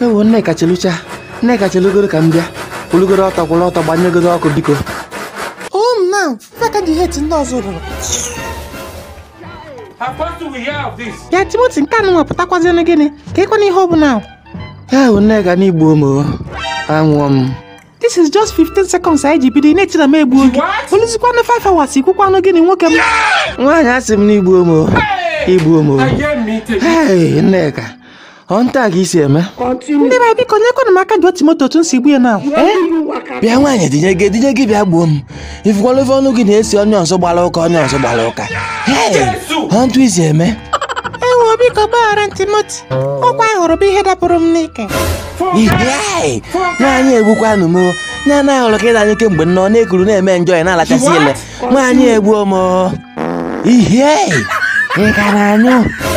ewo nneka chelucha nneka chelugoro ka m bịa olugoro ọtọ kwụrụ ọtọ gbanyegodo ọkụ biko home um, now faka dị het ọzọ ya timoti nke anụ nwapụtakwazienụ gịnị ka ịkwana ihe ọ bụla ewo nneka n'igbu omo anwụọ m this is just 15 seconds anyị ji bido na-etina m egbu oge oluzikwanụ 5 hours ikwukwanụ gịnị nwoke m nwaanyị asị m n'igbu omo igbu omo nneka ọ nta a ka isi eme ndị be biko nyekwanụ m aka dị otu moto otu m si gbu ya na eh? bịa nwaanyị dinye gị dinye gị bịa gbuo m ifukwala ofe ọnụ gị na-esi onye ọzọ gbara ụka onye ọzọ gbara ụka ọ ntụ isi eme ewo biko gbaghara ntimoti ọkwa hụrụ bụ ihe dapụrụ m n'ike nwaanyị egbukwanụ m nya na ahụrụ ka ịda anyị kemgbe nnọọ na-ekuru na-eme njọ ya na-alachasị ile nwaanyị egbuo m ihe anyụ